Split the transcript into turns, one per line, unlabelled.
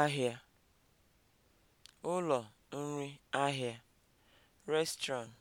ahịa, ụlọ nri ahịa, restaurant